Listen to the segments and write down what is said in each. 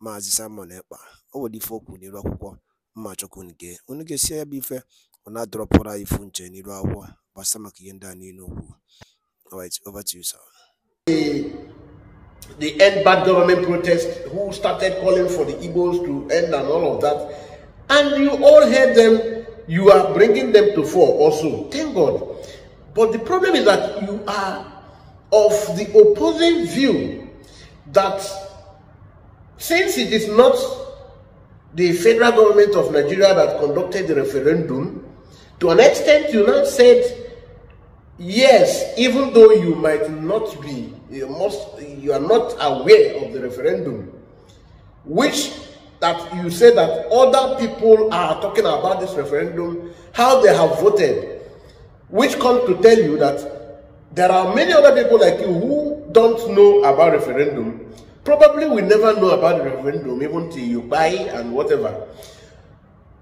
Maazị Simon Ekpa o nwere ife o kwuru n'iru akwụkwọ mma chọkwu unu gee unu gesie ya bụ ife ọ ifu nche n'iru akwụkwọ gbasa maka ihe ndị a niile okwu Alright, over to you, sir. The, the end bad government protest, who started calling for the Igbos to end and all of that, and you all heard them, you are bringing them to fall also. Thank God. But the problem is that you are of the opposing view that since it is not the federal government of Nigeria that conducted the referendum, to an extent you now said, yes, even though you might not be, you, must, you are not aware of the referendum, which that you say that other people are talking about this referendum, how they have voted, which comes to tell you that there are many other people like you who don't know about referendum Probably we never know about the referendum even till you buy and whatever.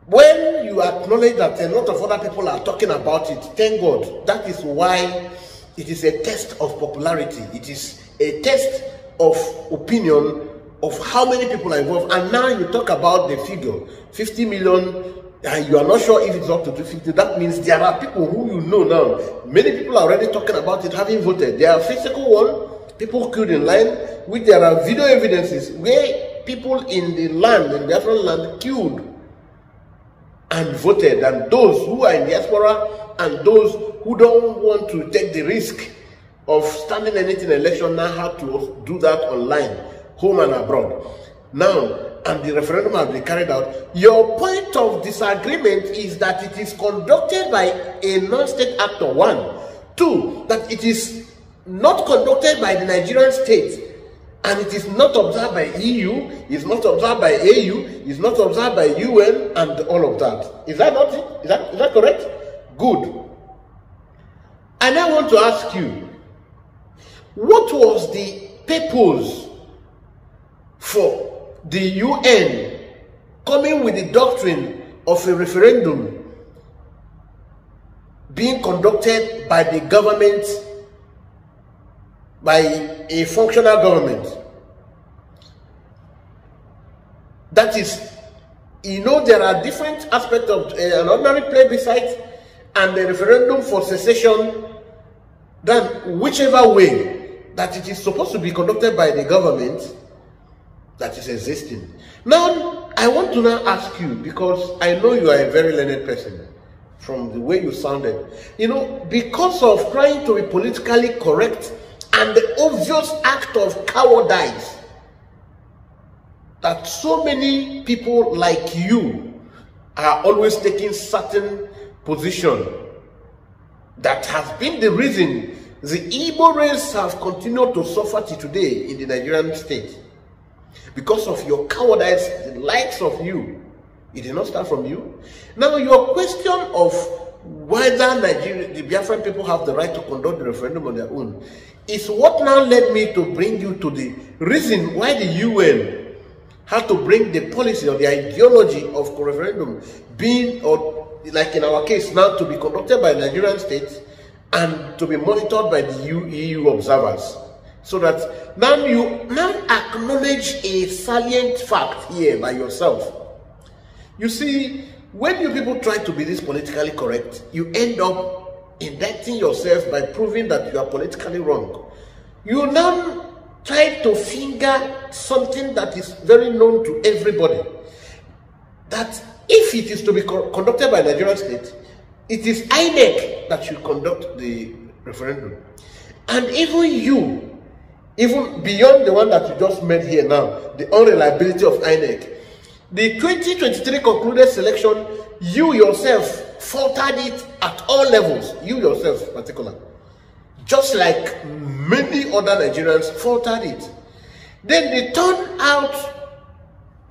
When you acknowledge that a lot of other people are talking about it, thank God. That is why it is a test of popularity. It is a test of opinion of how many people are involved. And now you talk about the figure, 50 million and you are not sure if it's up to 250, that means there are people who you know now. Many people are already talking about it, having voted. There are physical one, people killed in line, which there are video evidences where people in the land, in Biafran land, killed and voted, and those who are in diaspora and those who don't want to take the risk of standing anything election now have to do that online, home and abroad. Now, and the referendum has been carried out. Your point of disagreement is that it is conducted by a non-state actor, one. Two, that it is not conducted by the Nigerian state and it is not observed by EU, it's not observed by AU, it's not observed by UN and all of that. Is that not it? Is that, is that correct? Good. And I want to ask you, what was the purpose for the UN coming with the doctrine of a referendum being conducted by the government by a functional government. That is, you know, there are different aspects of uh, an ordinary plebiscite and a referendum for secession than whichever way that it is supposed to be conducted by the government that is existing. Now, I want to now ask you, because I know you are a very learned person from the way you sounded. You know, because of trying to be politically correct and the obvious act of cowardice that so many people like you are always taking certain position that has been the reason the Igbo race have continued to suffer to today in the Nigerian state because of your cowardice, the likes of you. It did not start from you. Now, your question of whether Nigeria, the Biafran people have the right to conduct the referendum on their own is what now led me to bring you to the reason why the UN had to bring the policy or the ideology of referendum being, or like in our case now, to be conducted by Nigerian states and to be monitored by the EU observers. So that now you now acknowledge a salient fact here by yourself. You see, when you people try to be this politically correct, you end up indicting yourself by proving that you are politically wrong. You now try to finger something that is very known to everybody. That if it is to be co conducted by Nigerian state, it is INEC that should conduct the referendum. And even you, even beyond the one that you just made here now, the unreliability of INEC, the 2023 concluded selection, you yourself faltered it at all levels. You yourself, particular. Just like many other Nigerians faltered it. Then the turnout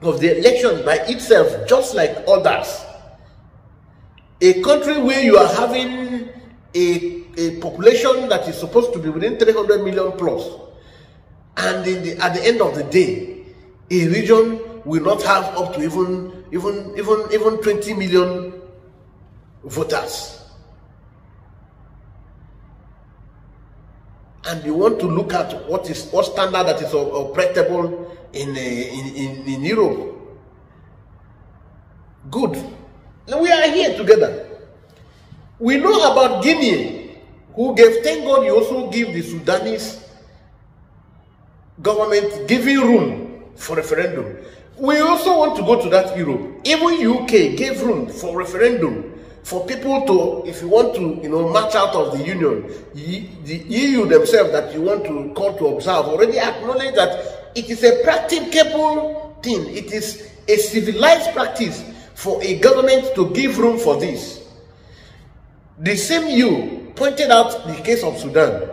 of the election by itself, just like others. A country where you are having a, a population that is supposed to be within 300 million plus, and the, at the end of the day, a region will not have up to even even even even 20 million voters. And you want to look at what is what standard that is operable in, eh, in, in, in Europe. Good. now we are here together. We know about Guinea, who gave, thank God you also give the Sudanese government giving room for referendum. We also want to go to that Europe. Even UK gave room for referendum for people to, if you want to, you know, march out of the union. The EU themselves that you want to call to observe already acknowledge that it is a practicable thing. It is a civilized practice for a government to give room for this. The same you pointed out the case of Sudan.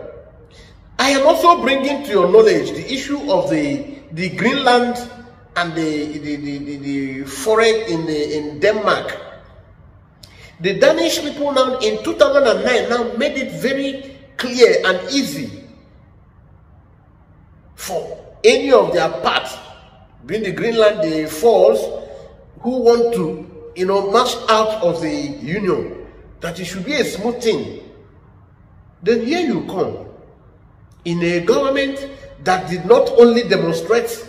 I am also bringing to your knowledge the issue of the, the Greenland and the, the, the, the, the forest in, the, in Denmark. The Danish people now in 2009 now made it very clear and easy for any of their parts, being the Greenland, the Falls, who want to, you know, march out of the Union, that it should be a smooth thing. Then here you come, in a government that did not only demonstrate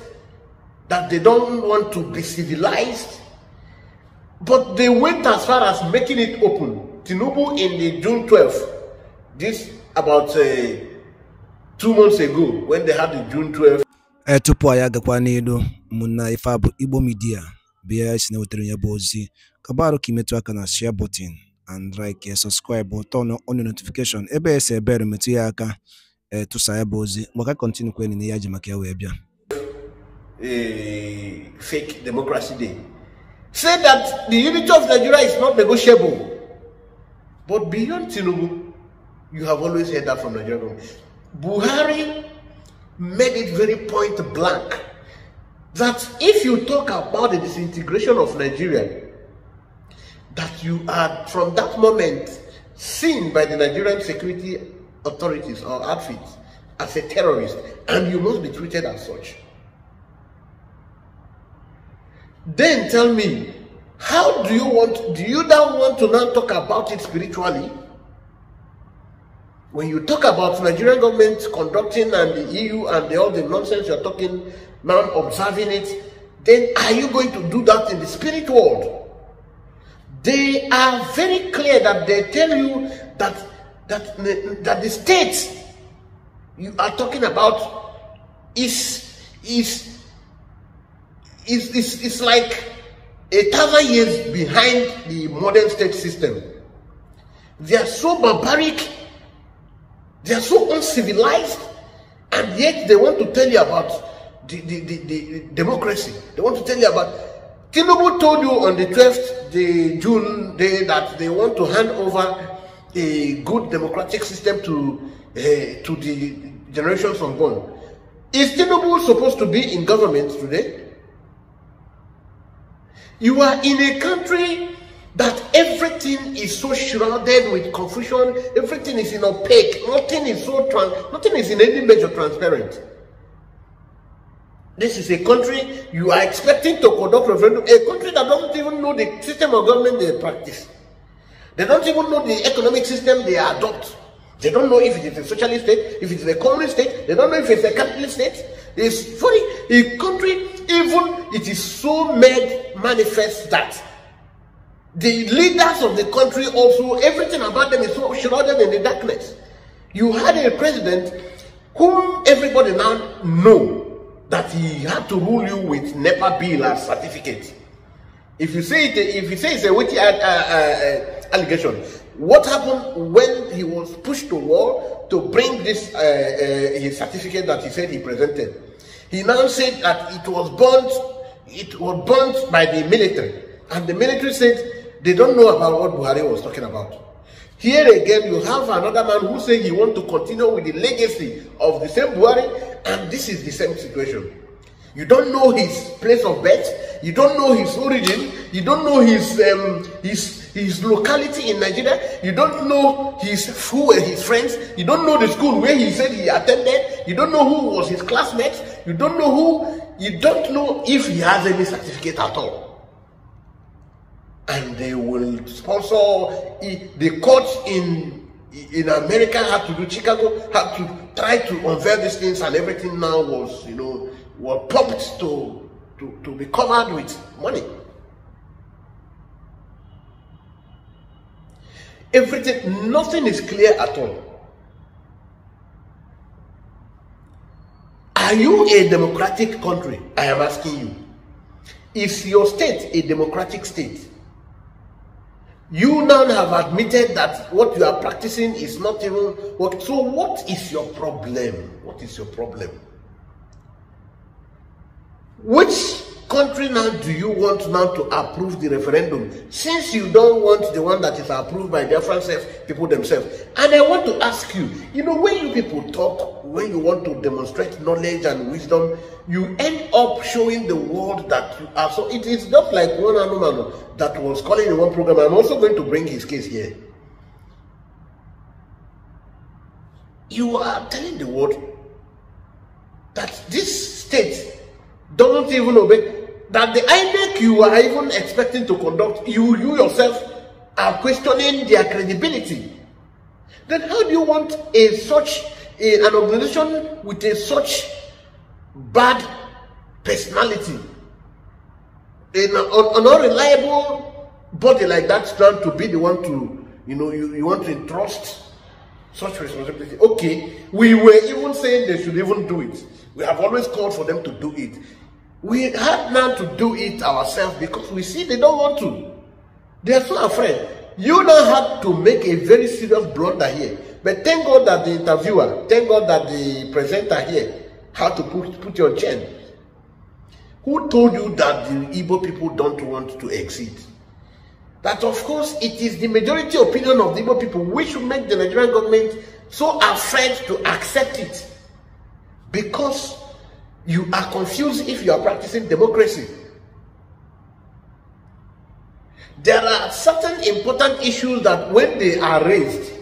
that they don't want to be civilized. But they went as far as making it open. Tinubu in the June 12th, this about uh, two months ago, when they had the June 12th. ee tupu anyị agakwa n'elu ụmụnna ife igbo midia bịa si na wetara ya bụ ozi aka na share button and like eh, subscribe turn on notification ebe esi ebere metụ ya aka ee eh, tụsa ya bụ ozi maka kọntinu kwenị ya ji ya wee uh, fake democracy day, say that the unity of Nigeria is not negotiable. But beyond Tinubu, you have always heard that from Nigeria. Buhari made it very point blank that if you talk about the disintegration of Nigeria, that you are from that moment seen by the Nigerian security authorities or outfits as a terrorist and you must be treated as such. Then tell me, how do you want, do you now want to now talk about it spiritually? When you talk about Nigerian government conducting and the EU and the, all the nonsense you're talking, now observing it, then are you going to do that in the spirit world? They are very clear that they tell you that that that the state you are talking about is is is, it's it's like a thousand years behind the modern state system. They are so barbaric, they are so uncivilized, and yet they want to tell you about the, the, the, the democracy. They want to tell you about. Tinubu told you on the 12th the June day that they want to hand over a good democratic system to uh, to the generations unborn. Is Tinubu supposed to be in government today? You are in a country that everything is so shrouded with confusion, everything is in opaque, nothing is so trans, nothing is in any measure transparent. This is a country you are expecting to conduct referendum, a country that doesn't even know the system of government they practice. They don't even know the economic system they adopt. They don't know if it is a socialist state, if it is a communist state, they don't know if it's a capitalist state. It's sorry, a country, even it is so made manifest that the leaders of the country also, everything about them is so shrouded in the darkness. You had a president whom everybody now know that he had to rule you with NEPA bill as certificate. If you say it, if you say it's a witty uh, uh, uh allegation, what happened when he was pushed to wall to bring this uh, uh, his certificate that he said he presented? He now said that it was burnt, it was burnt by the military, and the military said they don't know about what Buhari was talking about. Here again, you have another man who said he wants to continue with the legacy of the same Buhari, and this is the same situation. You don't know his place of birth, you don't know his origin, you don't know his um, his his locality in Nigeria. You don't know his who were his friends. You don't know the school where he said he attended. You don't know who was his classmates. You don't know who. You don't know if he has any certificate at all. And they will sponsor the courts in in America had to do Chicago had to try to unveil these things and everything now was you know were pumped to to, to be covered with money. Everything, nothing is clear at all. Are you a democratic country? I am asking you. Is your state a democratic state? You now have admitted that what you are practicing is not even what. So, what is your problem? What is your problem? Which country now do you want now to approve the referendum since you don't want the one that is approved by the French people themselves? And I want to ask you, you know, when you people talk, when you want to demonstrate knowledge and wisdom, you end up showing the world that you are. So it is not like one animal that was calling in one program. I'm also going to bring his case here. You are telling the world that this state doesn't even obey that the INEC you are even expecting to conduct, you, you yourself are questioning their credibility. Then how do you want a such a, an organization with a such bad personality, an, an unreliable body like that, stand to be the one to, you know, you, you want to entrust such responsibility? Okay, we were even saying they should even do it. We have always called for them to do it. We had now to do it ourselves because we see they don't want to. They are so afraid. You now had to make a very serious blunder here. But thank God that the interviewer, thank God that the presenter here had to put, put your chain. Who told you that the Ibo people don't want to exit? That of course it is the majority opinion of the Igbo people which should make the Nigerian government so afraid to accept it. Because you are confused if you are practicing democracy. There are certain important issues that when they are raised,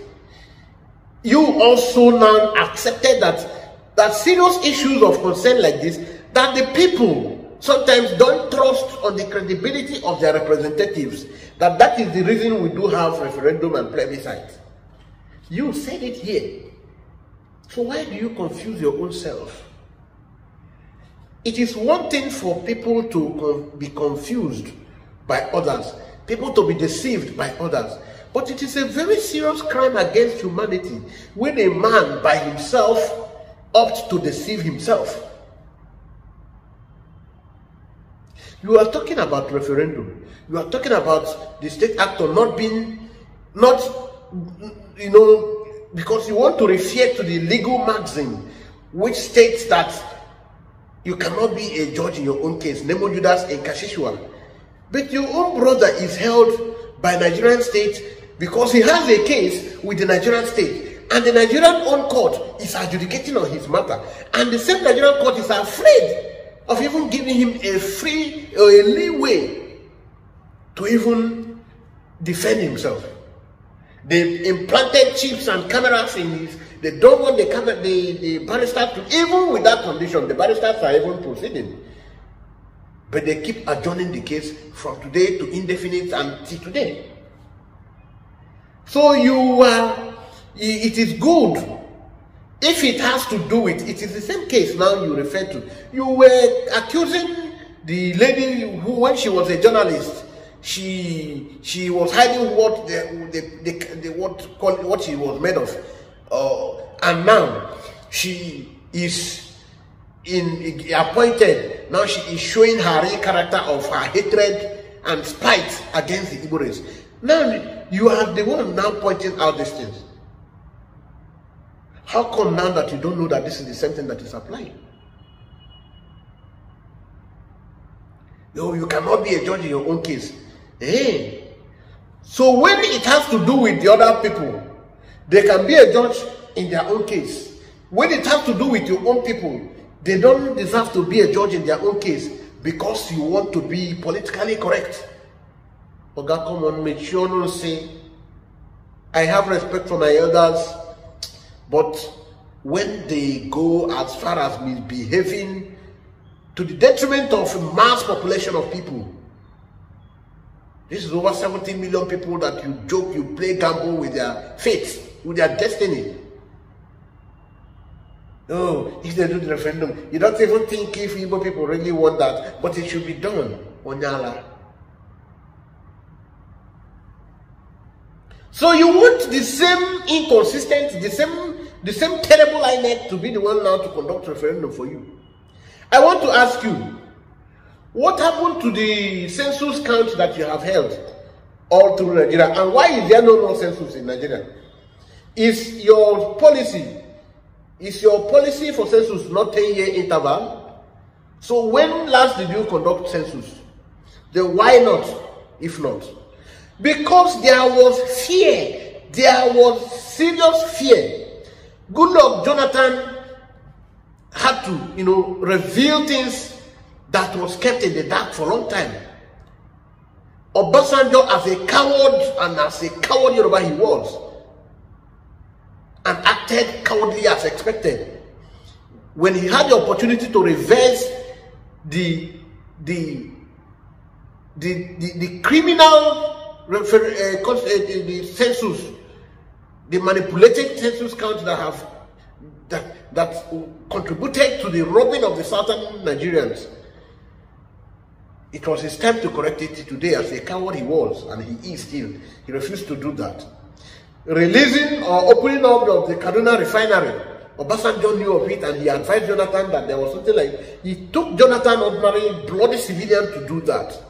you also now accepted that, that serious issues of concern like this, that the people sometimes don't trust on the credibility of their representatives, that that is the reason we do have referendum and plebiscite. You said it here. So why do you confuse your own self? It is one thing for people to uh, be confused by others, people to be deceived by others. But it is a very serious crime against humanity when a man by himself opts to deceive himself. You are talking about referendum. You are talking about the state actor not being, not, you know, because you want to refer to the legal maxim which states that you cannot be a judge in your own case. Nemo Judas in Kashishuan. But your own brother is held by Nigerian state because he has a case with the Nigerian state. And the Nigerian own court is adjudicating on his matter. And the same Nigerian court is afraid of even giving him a free or a leeway to even defend himself. They implanted chips and cameras in his they don't want the, the, the barristers to, even with that condition, the barristers are even proceeding. But they keep adjourning the case from today to indefinite until today. So you are, it is good. If it has to do with, it is the same case now you refer to. You were accusing the lady who, when she was a journalist, she she was hiding what the, the, the, the what what she was made of and now she is in appointed. Now she is showing her real character of her hatred and spite against the Igbo race. Now you are the one now pointing out these things. How come now that you don't know that this is the same thing that is applying? No, you cannot be a judge in your own case. Hey. Eh? So when it has to do with the other people, they can be a judge in their own case. When it has to do with your own people, they don't deserve to be a judge in their own case because you want to be politically correct. Oga, come on, make sure not say, I have respect for my elders, but when they go as far as misbehaving to the detriment of mass population of people, this is over 17 million people that you joke, you play gamble with their faith with their destiny. No, if they do the referendum, you don't even think if Igbo people really want that, but it should be done on Yala. So you want the same inconsistent, the same, the same terrible INEC to be the one now to conduct referendum for you. I want to ask you, what happened to the census count that you have held all through Nigeria, and why is there no more census in Nigeria? Is your policy, is your policy for census not 10-year interval? So when last did you conduct census? Then why not, if not? Because there was fear. There was serious fear. Good luck, Jonathan had to, you know, reveal things that was kept in the dark for a long time. Obasanjo, as a coward and as a coward Yoruba he was, and acted cowardly as expected. When he had the opportunity to reverse the the the, the, the criminal refer, uh, cons, uh, the, the census, the manipulated census counts that have that that contributed to the robbing of the southern Nigerians. It was his time to correct it today as a coward he was and he is still. He refused to do that releasing or opening up of the Kaduna refinery. Obasanjo knew of it and he advised Jonathan that there was something like, he took Jonathan ordinary bloody civilian to do that.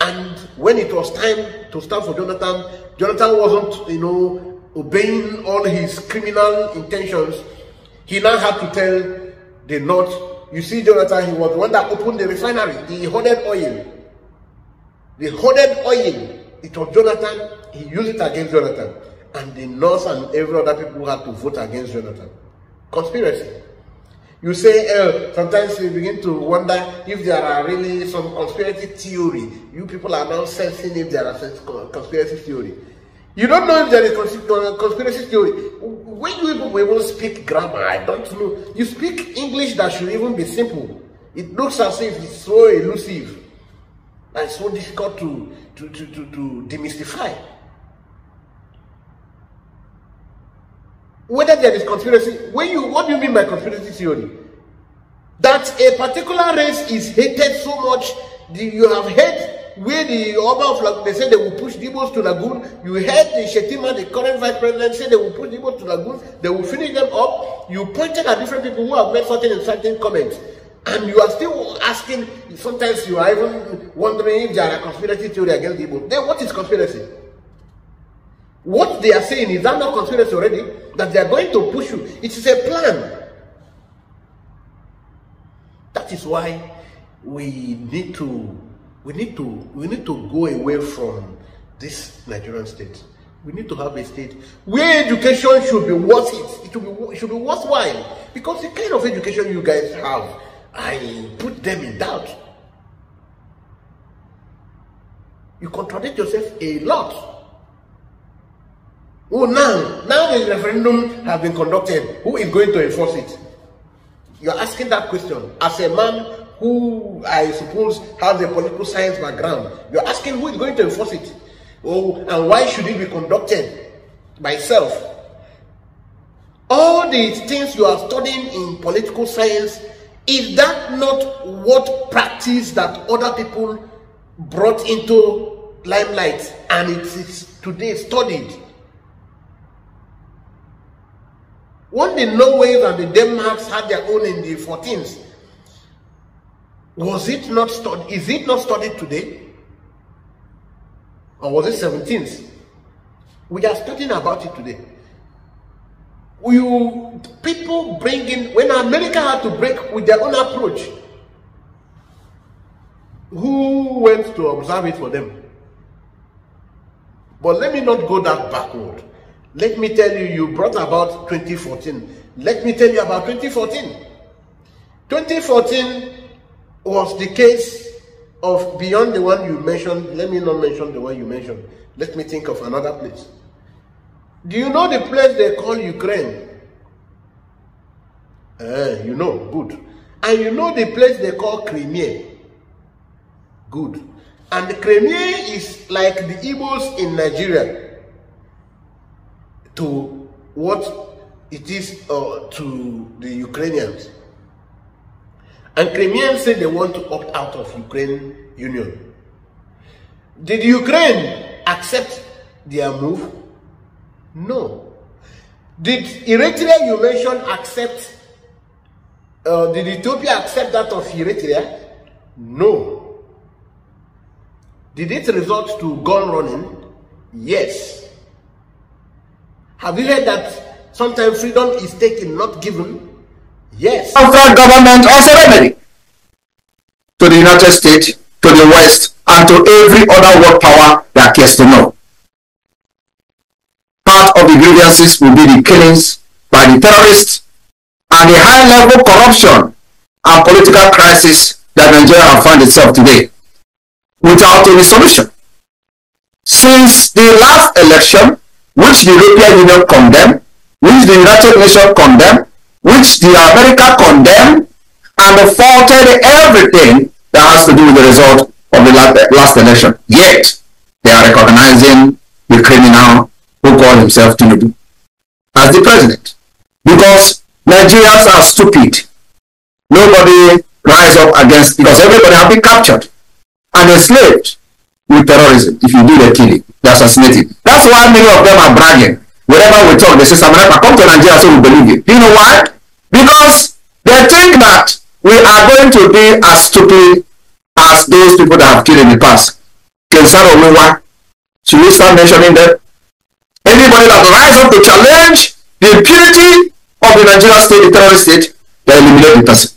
And when it was time to stand for Jonathan, Jonathan wasn't, you know, obeying all his criminal intentions. He now had to tell the North, you see, Jonathan, he was the one that opened the refinery, the hoarded oil. The hoarded oil it was Jonathan, he used it against Jonathan. And the nurse and every other people had to vote against Jonathan. Conspiracy. You say, uh, sometimes you begin to wonder if there are really some conspiracy theory. You people are now sensing if there are conspiracy theory. You don't know if there is conspiracy theory. When you people even speak grammar, I don't know. You speak English that should even be simple. It looks as if it's so elusive. It's so difficult to, to, to, to, to demystify. Whether there is conspiracy, when you what do you mean by conspiracy theory? That a particular race is hated so much, you have hate where the Oba of Lagoon, they say they will push Dibos to Lagoon. You heard the Shetima, the current vice president, say they will push Dibos to Lagoon. They will finish them up. You pointed at different people who have made certain and certain comments and you are still asking, sometimes you are even wondering if there are conspiracy theory against the Igbo. Then what is conspiracy? What they are saying, is that not conspiracy already? That they are going to push you. It is a plan. That is why we need to we need to we need to go away from this Nigerian state. We need to have a state where education should be worth it. It should be, it should be worthwhile because the kind of education you guys have I put them in doubt. You contradict yourself a lot. Oh, now, now the referendum has been conducted. Who is going to enforce it? You're asking that question. As a man who, I suppose, has a political science background, you're asking who is going to enforce it? Oh, and why should it be conducted by self? All these things you are studying in political science is that not what practice that other people brought into limelight and it is today studied? What the Norways and the Denmarks had their own in the 14th, was it not studied? Is it not studied today? Or was it 17th? We are studying about it today you people bring in when America had to break with their own approach. Who went to observe it for them? But let me not go that backward. Let me tell you, you brought about 2014. Let me tell you about 2014. 2014 was the case of beyond the one you mentioned. Let me not mention the one you mentioned. Let me think of another place. Do you know the place they call Ukraine? Uh, you know, good. And you know the place they call Crimea? Good. And Crimea is like the Igbos in Nigeria to what it is uh, to the Ukrainians. And Crimeans say they want to opt out of Ukraine Union. Did Ukraine accept their move? No. Did Eritrea you mentioned accept, uh, did Ethiopia accept that of Eritrea? No. Did it result to gun running? Yes. Have you heard that sometimes freedom is taken, not given? Yes. Our government also remedy to the United States, to the West, and to every other world power that cares to know. Part of the grievances will be the killings by the terrorists and the high level corruption and political crisis that Nigeria finds itself today without any solution. Since the last election, which the European Union condemned, which the United Nations condemned, which the America condemned, and faulted everything that has to do with the result of the last election. Yet, they are recognizing the criminal who call himself Tinubu as the president because Nigerians are stupid. Nobody rise up against because everybody have been captured and enslaved with terrorism if you do the killing, the assassinating. That's why many of them are bragging. Wherever we talk, they say, Samarapa, come to Nigeria so we believe you. Do you know why? Because they think that we are going to be as stupid as those people that have killed in the past. Can Kensaro why? should we start mentioning them? anybody that rises up to challenge the impunity of the Nigerian state, the terrorist state, they eliminate the person.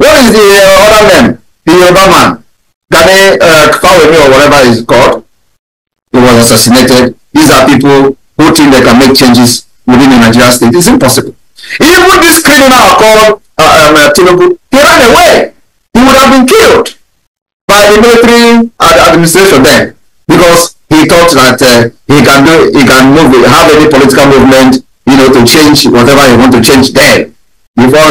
What is the uh, other name? The other man, Gani uh, Kawemi or whatever he's called, he was assassinated. These are people who think they can make changes within the Nigerian state. It's impossible. Even this criminal called uh, um, uh, Tinubu, he ran away. He would have been killed by the military administration then because he thought that uh, he can do, he can move, have any political movement, you know, to change whatever he want to change there before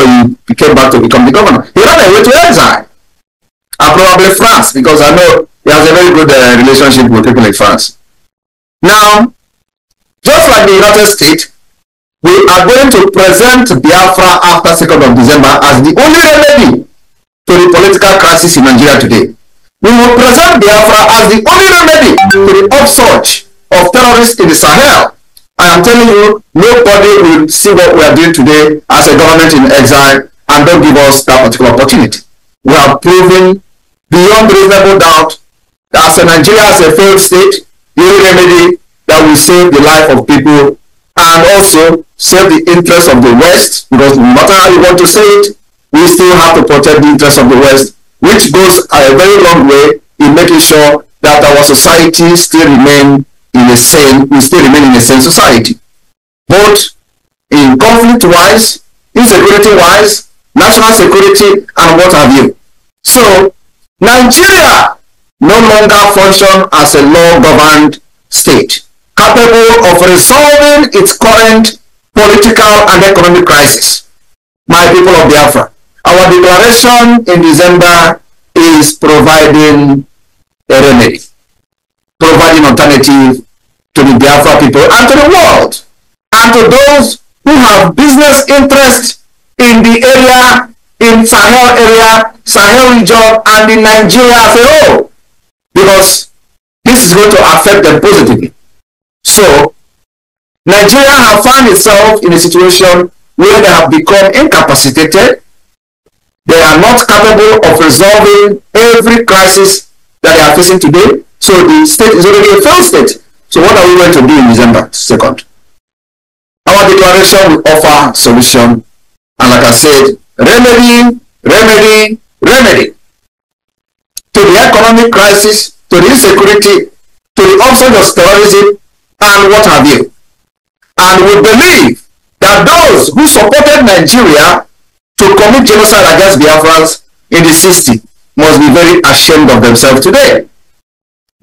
he came back to become the governor. He ran away to exile, and probably France, because I know he has a very good uh, relationship with people in France. Now, just like the United States, we are going to present Biafra after 2nd of December as the only remedy to the political crisis in Nigeria today. We will present Biafra as the only remedy to the upsurge of terrorists in the Sahel. I am telling you, nobody will see what we are doing today as a government in exile and don't give us that particular opportunity. We have proven beyond reasonable doubt that as a Nigeria as a failed state, the only remedy that will save the life of people and also save the interests of the West, because no matter how you want to say it, we still have to protect the interests of the West which goes a very long way in making sure that our society still remain in a sane, we still remain in a sane society. Both in conflict wise, insecurity wise, national security, and what have you. So, Nigeria no longer function as a law-governed state, capable of resolving its current political and economic crisis. My people of Biafra, our declaration in December is providing a remedy, providing alternative to the Biafra people and to the world, and to those who have business interests in the area, in Sahel area, Sahel region, and in Nigeria as a whole, because this is going to affect them positively. So, Nigeria have found itself in a situation where they have become incapacitated they are not capable of resolving every crisis that they are facing today. So the state is already a failed state. So what are we going to do in December 2nd? Our declaration will offer solution. And like I said, remedy, remedy, remedy. To the economic crisis, to the insecurity, to the onset of terrorism, and what have you. And we believe that those who supported Nigeria to commit genocide against Biafrans in the 60s must be very ashamed of themselves today.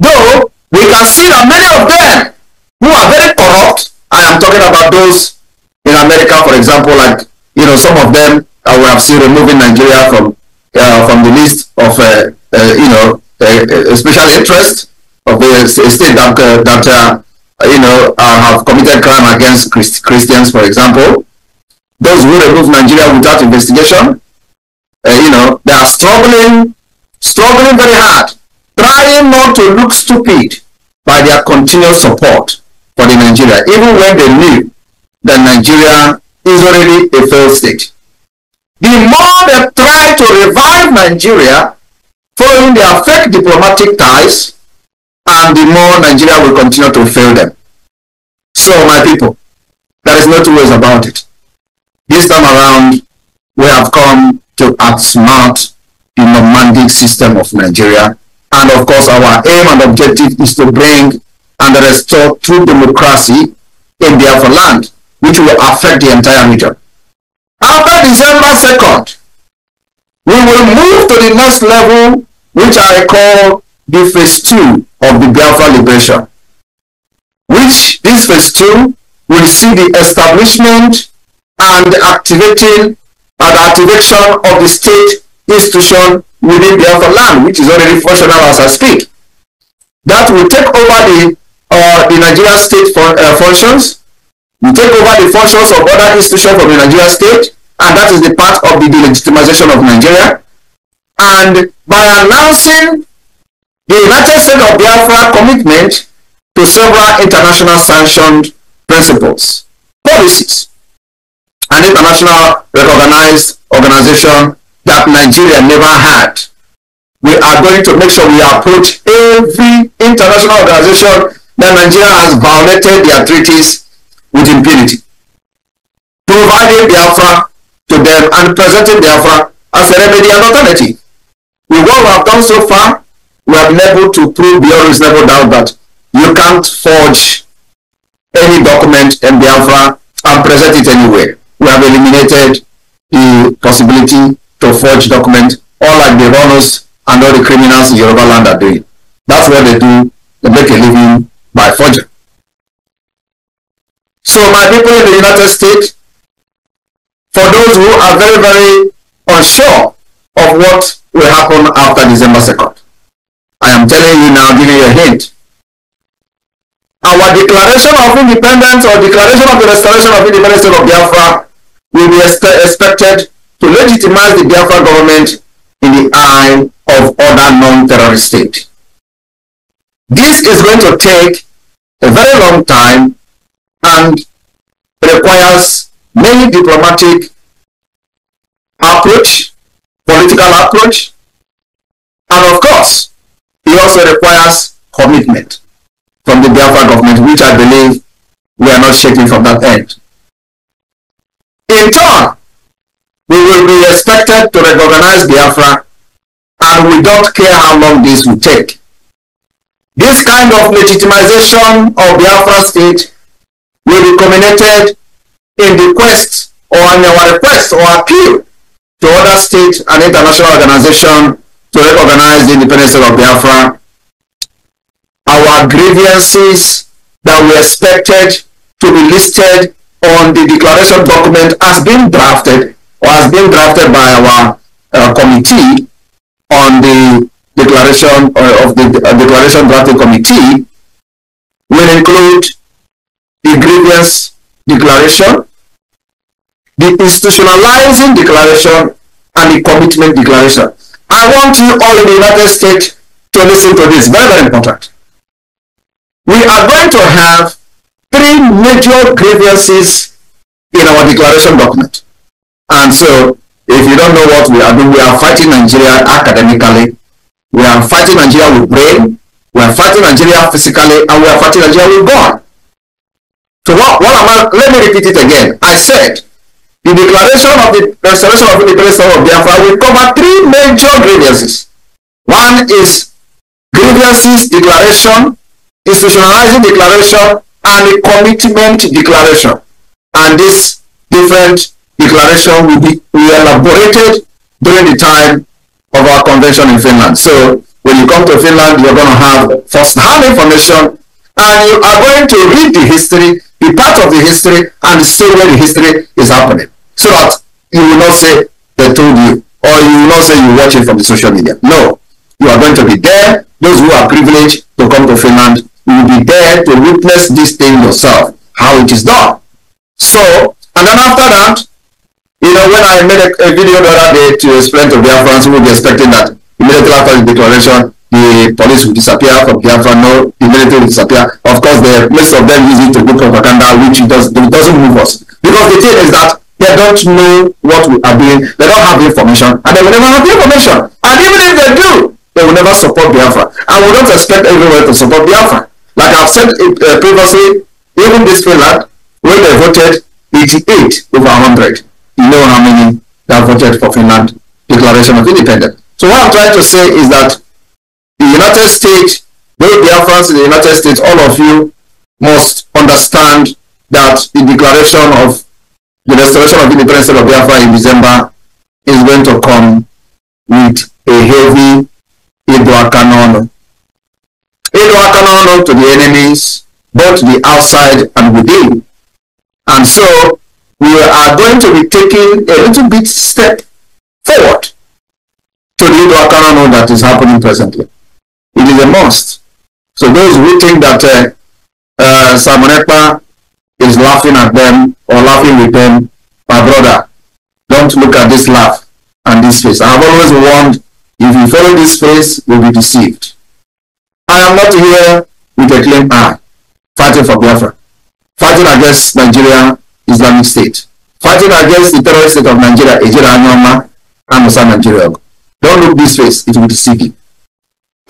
Though, we can see that many of them who are very corrupt, I am talking about those in America, for example, like, you know, some of them I would have seen removing Nigeria from uh, from the list of, uh, uh, you know, uh, uh, special interest of the state that, uh, that you know, have committed crime against Christ Christians, for example those who remove Nigeria without investigation. Uh, you know, they are struggling, struggling very hard, trying not to look stupid by their continuous support for the Nigeria, even when they knew that Nigeria is already a failed state. The more they try to revive Nigeria following their fake diplomatic ties, and the more Nigeria will continue to fail them. So, my people, there is no two ways about it. This time around, we have come to outsmart the nomadic system of Nigeria. And of course, our aim and objective is to bring and restore true democracy in Biafra land, which will affect the entire region. After December 2nd, we will move to the next level, which I call the phase two of the Biafra liberation, which this phase two will see the establishment and activating uh, the activation of the state institution within Biafra land, which is already functional as I speak. That will take over the uh, the Nigerian state fun uh, functions, will take over the functions of other institutions of the Nigerian state, and that is the part of the delegitimization of Nigeria. And by announcing the United States of Biafra commitment to several international sanctioned principles, policies, an international recognized organization that Nigeria never had. We are going to make sure we approach every international organization that Nigeria has violated their treaties with impunity. Providing Biafra the to them and presenting Biafra the as a remedy and alternative. With what we have done so far, we have been able to prove beyond reasonable doubt that you can't forge any document in Biafra and present it anywhere we have eliminated the possibility to forge documents, all like the runners and all the criminals in Yoruba land are doing. That's what they do. They make a living by forging. So my people in the United States, for those who are very, very unsure of what will happen after December 2nd, I am telling you now, giving you a hint. our declaration of independence or declaration of the restoration of independence of Biafra will be expected to legitimize the Biafra government in the eye of other non-terrorist states. This is going to take a very long time and requires many diplomatic approach, political approach, and of course, it also requires commitment from the Biafra government, which I believe we are not shaking from that end. In turn, we will be expected to recognize Biafra and we don't care how long this will take. This kind of legitimization of Biafra state will be culminated in the quest or in our request or appeal to other states and international organizations to recognize the independence of Biafra our grievances that we expected to be listed on the declaration document has been drafted or has been drafted by our uh, committee on the declaration uh, of the uh, declaration drafting committee will include the grievance declaration, the institutionalizing declaration, and the commitment declaration. I want you all in the United States to listen to this. Very, very important. we are going to have three major grievances in our declaration document. And so, if you don't know what we are doing, we are fighting Nigeria academically, we are fighting Nigeria with brain, we are fighting Nigeria physically, and we are fighting Nigeria with God. So what, what am I, let me repeat it again. I said, the declaration of the restoration of independence of Biafra will cover three major grievances. One is grievances declaration institutionalizing declaration and a commitment declaration. And this different declaration will be elaborated during the time of our convention in Finland. So when you come to Finland, you're going to have first-hand information and you are going to read the history, be part of the history, and see where the history is happening. So that you will not say they told you, or you will not say you watch it from the social media. No, you are going to be there. Those who are privileged to come to Finland you will be there to witness this thing yourself, how it is done. So, and then after that, you know, when I made a, a video the other day to explain to Biafrans who will be expecting that immediately after the declaration, the police will disappear from Biafra, no, immediately will disappear. Of course, the most of them use it to do propaganda, which does, doesn't move us. Because the thing is that they don't know what we are doing, they don't have the information, and they will never have the information. And even if they do, they will never support Biafra. And we don't expect everyone to support Biafra. Like I've said uh, previously, even this Finland, when they voted 88 over 100, you know how many that voted for Finland Declaration of Independence. So what I'm trying to say is that the United States, both the Afghans in the United States, all of you must understand that the declaration of the restoration of independence of Biafra in December is going to come with a heavy canon they not to the enemies, both the outside and within. And so we are going to be taking a little bit step forward to the Idoakarano that is happening presently. It is a must. So those who think that uh, uh, is laughing at them or laughing with them, my brother, don't look at this laugh and this face. I've always warned, if you follow this face, you'll be deceived. I am not here with a clean eye, fighting for Biafra, fighting against Nigeria Islamic State, fighting against the terrorist state of Nigeria, Ejira and Musa Nigeria. Don't look this face, it will deceive you.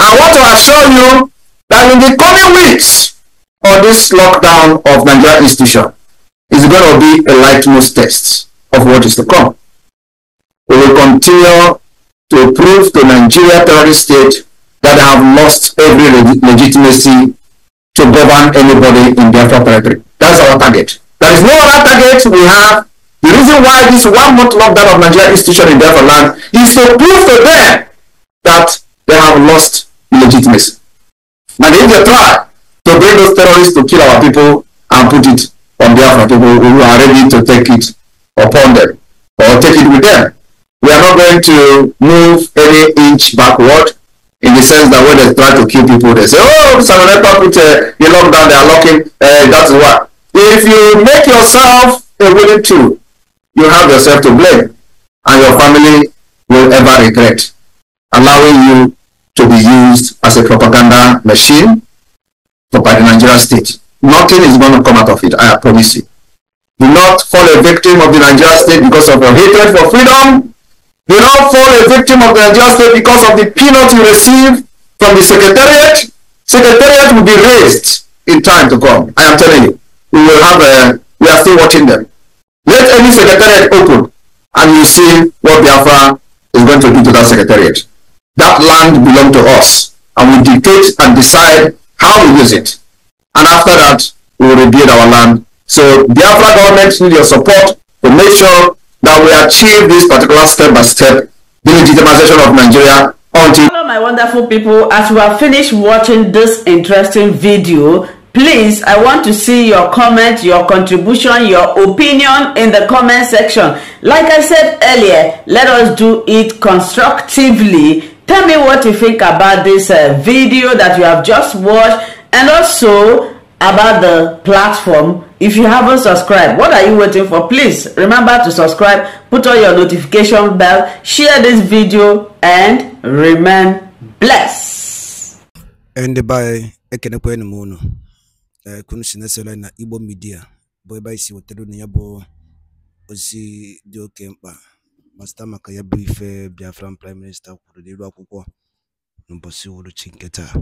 I want to assure you that in the coming weeks on this lockdown of Nigeria institution is going to be a litmus test of what is to come. We will continue to prove to Nigeria terrorist state that have lost every leg legitimacy to govern anybody in their territory. That's our target. There is no other target we have. The reason why this one month lockdown of Nigeria institution in Biafra land is to prove to them that they have lost legitimacy. And if they try to bring those terrorists to kill our people and put it on Biafra people who are ready to take it upon them or take it with them, we are not going to move any inch backward in the sense that when they try to kill people, they say, oh, Simon Epa put uh, down, they are locking, uh, eh, that's why. If you make yourself a willing to, you have yourself to blame, and your family will ever regret allowing you to be used as a propaganda machine for by the Nigerian state. Nothing is going to come out of it, I promise you. Do not fall a victim of the Nigerian state because of your hatred for freedom do not fall a victim of the injustice because of the peanuts you receive from the Secretariat. Secretariat will be raised in time to come. I am telling you. We will have, a, uh, we are still watching them. Let any Secretariat open and you see what Biafra is going to do to that Secretariat. That land belongs to us and we dictate and decide how we use it. And after that, we will rebuild our land. So Biafra government need your support to make sure that we achieve this particular step-by-step delegitimization of Nigeria until... Hello my wonderful people, as we have finished watching this interesting video, please i want to see your comment your contribution your opinion in the comment section like i said earlier let us do it constructively tell me what you think about this uh, video that you have just watched and also about the platform if you haven't subscribed what are you waiting for please remember to subscribe put on your notification bell share this video and remain blessed ndị be ekenekwa enyi m unu eh, kunu si na-esere na igbo midia bụ ebe anyị si wetara unu ya bụ ozi dị oke mkpa ma site maka ya bụ ife biafran prime minista kwuru n'iru akwụkwọ n'ụbọchị uhuruchi nke taa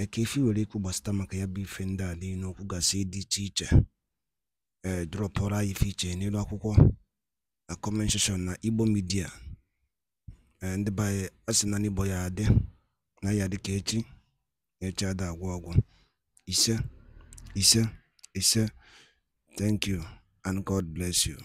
ka Ekefi nwere ikwu gbasata maka ya bụ ife ndị a niile okwu gasị dị iche iche ee drọpụrụ anyị ife iche n'elu akwụkwọ na comment na Igbo midia ee ndị be anyị na n'Igbo ya adị na ya dị ka echi na echi ada agwụ agwụ ise ise ise thank you and God bless you